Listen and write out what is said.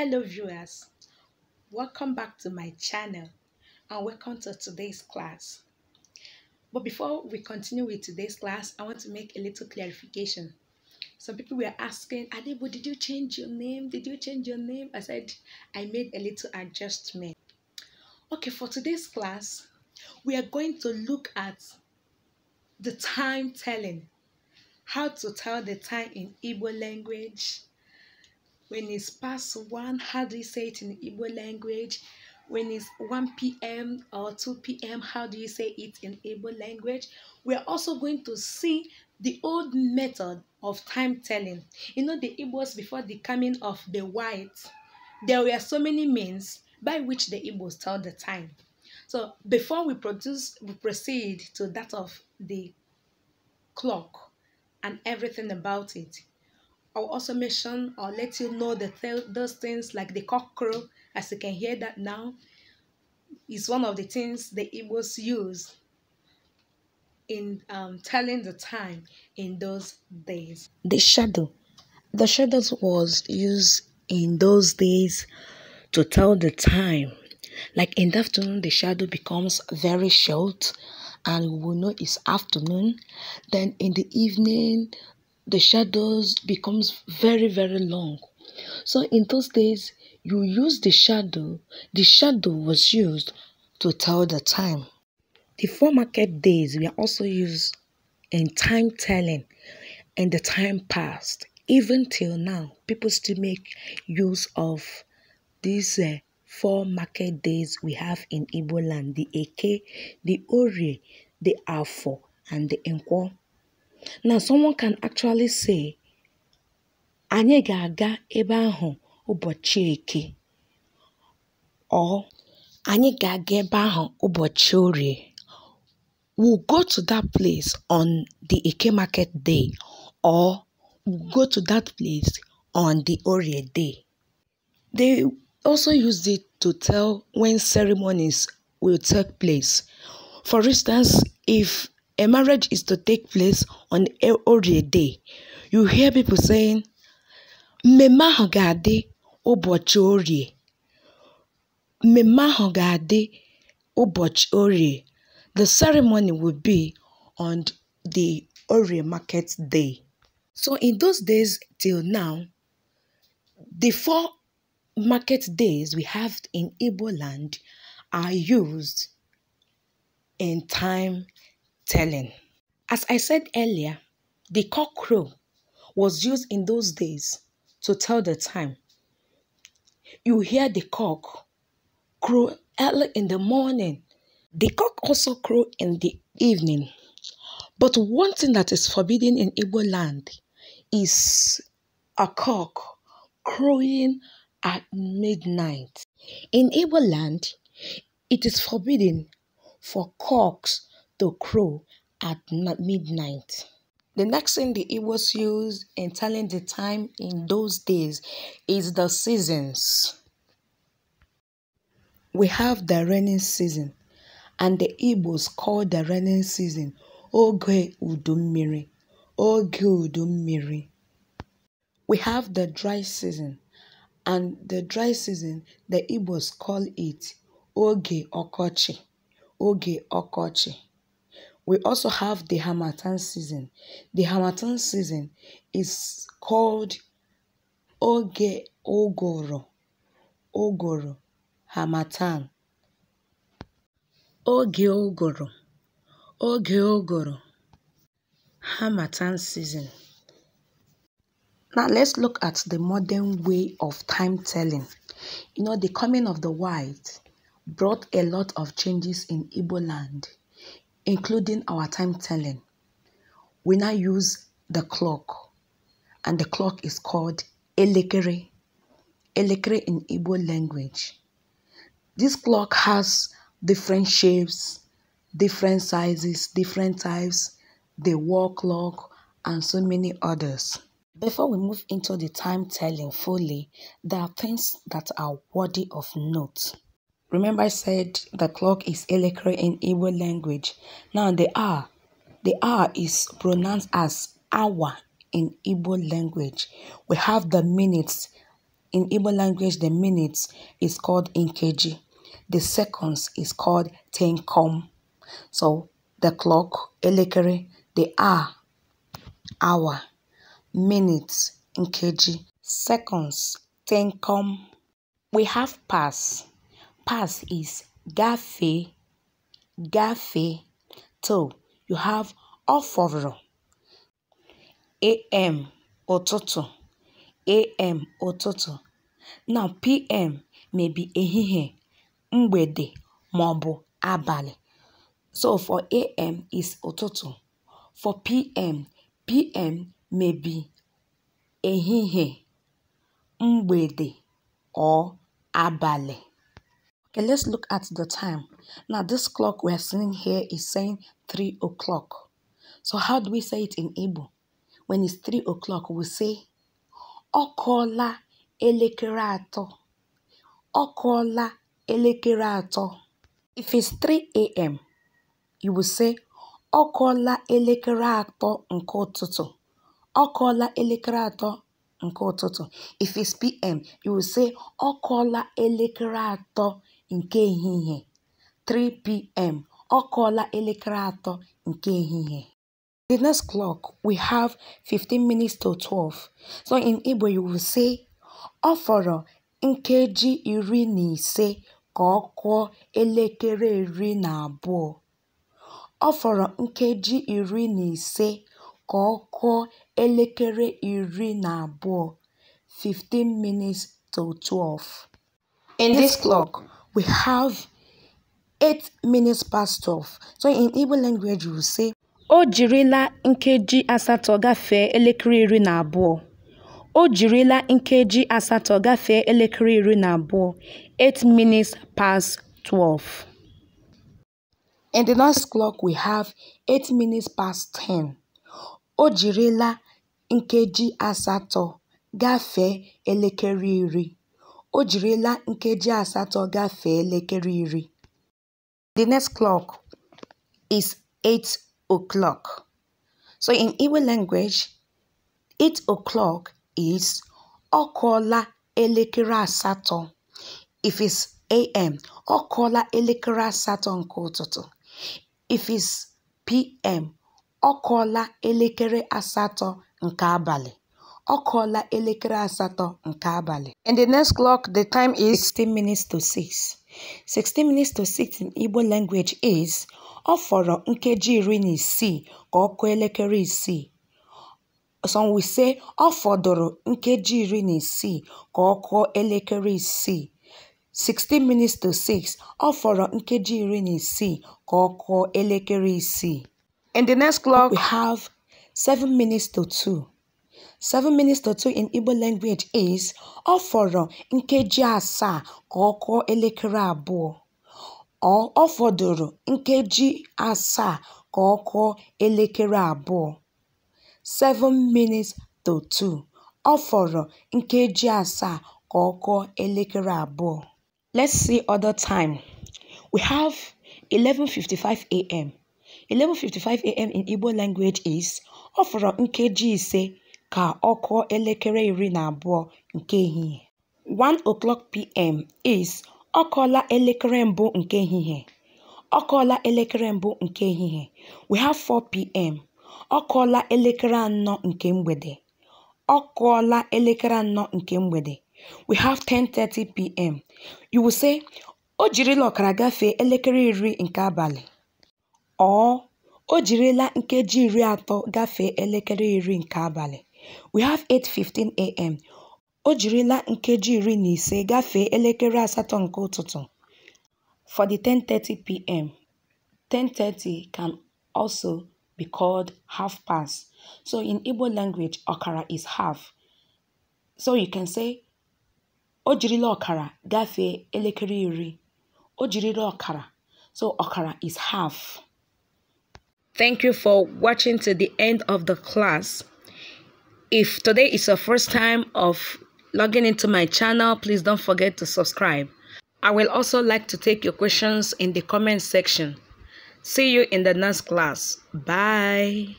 Hello viewers, welcome back to my channel and welcome to today's class. But before we continue with today's class, I want to make a little clarification. Some people were asking, Adebo, did you change your name? Did you change your name? I said, I made a little adjustment. Okay, for today's class, we are going to look at the time telling, how to tell the time in Igbo language, when it's past 1, how do you say it in Igbo language? When it's 1 p.m. or 2 p.m., how do you say it in Igbo language? We're also going to see the old method of time telling. You know, the Igbos before the coming of the whites, there were so many means by which the Igbos tell the time. So before we produce, we proceed to that of the clock and everything about it. I'll also mention or let you know the th those things like the cockcrow, as you can hear that now, is one of the things the Igbos use in um, telling the time in those days. The shadow. The shadow was used in those days to tell the time. Like in the afternoon, the shadow becomes very short and we will know it's afternoon. Then in the evening, the shadows becomes very very long so in those days you use the shadow the shadow was used to tell the time the four market days were also used in time telling and the time passed even till now people still make use of these uh, four market days we have in Igbo land the Eke, the Orie, the Afo, and the Nkwo. Now, someone can actually say, anyị ga-aga ebe ahụ ụbọchị eke or anyị ga-aga ebe ahụ ụbọchị orie. We'll go to that place on the Eke market day or we'll go to that place on the Orie day. They also use it to tell when ceremonies will take place. For instance, if a marriage is to take place on a holy day. You hear people saying, "Mema ahụ ga-adị ụbọchị orie. Mmemme ahụ orie. The ceremony will be on the Orie market day. So in those days till now, the four market days we have in Igbo land are used in time telling. As I said earlier, the cock crow was used in those days to tell the time. You hear the cock crow early in the morning. The cock also crow in the evening. But one thing that is forbidden in Igbo land is a cock crowing at midnight. In Igbo land, it is forbidden for cocks the crow at midnight. The next thing the Igbos use in telling the time in those days is the seasons. We have the rainy season, and the Igbos call the rainy season Oge Udummiri. Oge Udummiri. We have the dry season, and the dry season the Igbos call it Oge Okochi. Oge Okochi we also have the Hamatan season. The Hamatan season is called Oge Ogoro. Ogoro. Hamatan. Oge Ogoro. Oge Ogoro. Hamatan season. Now let's look at the modern way of time telling. You know, the coming of the white brought a lot of changes in Igbo land including our time telling. We now use the clock, and the clock is called elekere, elekere in Igbo language. This clock has different shapes, different sizes, different types, the wall clock, and so many others. Before we move into the time telling fully, there are things that are worthy of note. Remember I said the clock is elekere in Igbo language. Now the R, the R is pronounced as hour in Igbo language. We have the minutes. In Igbo language, the minutes is called inkeji. The seconds is called tenkom. So the clock, elekere, the R hour, minutes, inkeji, seconds, tenkom. We have pass. Pass is "gafee", "gafee", so you have "ọ fọrọ" (AM, ụtụtụ, AM, ụtụtụ) na PM may be ehihie, mgbede maọbụ abalị. So for AM is "ụtụtụ", for PM, PM may be ehihie, mgbede or abalị. let's look at the time. Now this clock we are seeing here is saying 3 o'clock. So how do we say it in Igbo? When it's 3 o'clock, we say "okola elekere okola Ọkọọla If it's 3 a.m., you will say "okola elekere atọ nke ụtụtụ. Ọkọọla If it's p.m., you will say "okola elekere atọ nke ehihie (3pm) ọ kụọla elekere atọ nke ehihie. The next clock we have 15 minutes to 12, so in Igbo you will say "ọ fọrọ nkeji iri na ise ka ọ kụọ elekere iri na abụọ", "ọ fọrọ nkeji iri na ise ka ọ kụọ elekere iri na abụọ", "15 minutes to 12". In this clock we have eight minutes past 12. So in Igbo language, you say, O jirila nkeji asatọ gafee elekere iri na abụọ. O jirila nkeji asatọ gafee elekere iri na abụọ. eight minutes past 12. In the next clock, we have eight minutes past 10. O jirila nkeji asatọ gafee elekere iri. O jirila nkeji asatọ gafee elekere iri. The next clock is 8 o'clock. So in Igbo language, 8 o'clock is okola kụọla elekere asatọ. If it's AM, okola kụọla elekere asatọ nke ụtụtụ. If it's PM, okola kụọla elekere asatọ nke abalị. Ọ kụọla elekere asatọ nke abalị. In the next clock, the time is 16 minutes to 6. 16 minutes to 6 in Igbo language is ọ fọrọ nkeji iri na isii ka ọ kụọ elekere isii. Some will say ọ fọdụrụ nkeji iri na isii ka ọ kụọ elekere isii. 16 minutes to 6 ọ fọrọ nkeji iri na isii ka ọ kụọ elekere isii. In the next clock, we have 7 minutes to 2. 7 minutes 2 in Igbo language is: Ọ fọrọ nkeji asaa ka ọ kụọ elekere abụọ. Ọ fọdụrụ nkeji asaa ka ọ kụọ elekere abụọ. 7 minutes to 2 Ọ fọrọ nkeji asaa ka ọ kụọ elekere abụọ. Let's see other time. We have 11:55 a.m. 11:55 a.m. in Igbo language is: Ọ fọrọ nkeji ise ka ọ elekere iri na abụọ nke ehihie. 1:00pm is Ọ elekere mbụ nke ehihie. Ọ elekere mbụ nke ehihie we have (4pm) Ọ elekere anọ nke mgbede. Ọ elekere anọ nke mgbede we have (10:30pm) say O jirila ọkara gafee elekere iri nke abalị. ọ O jirila nkeji iri atọ gafee elekere iri nke abalị. We have 8:15 AM. O jirila nkeji iri na ise gafee elekere asatọ nke ụtụtụ for the 10:30 p.m. 10:30 can also be called half past. So in Igbo language, okara is half. So you can say o jirila okara gafee elekere iri. O jirila okara. So okara is half. Thank you for watching to the end of the class. If today is your first time of logging into my channel, please don't forget to subscribe. I will also like to take your questions in the comment section. See you in the next class. Bye.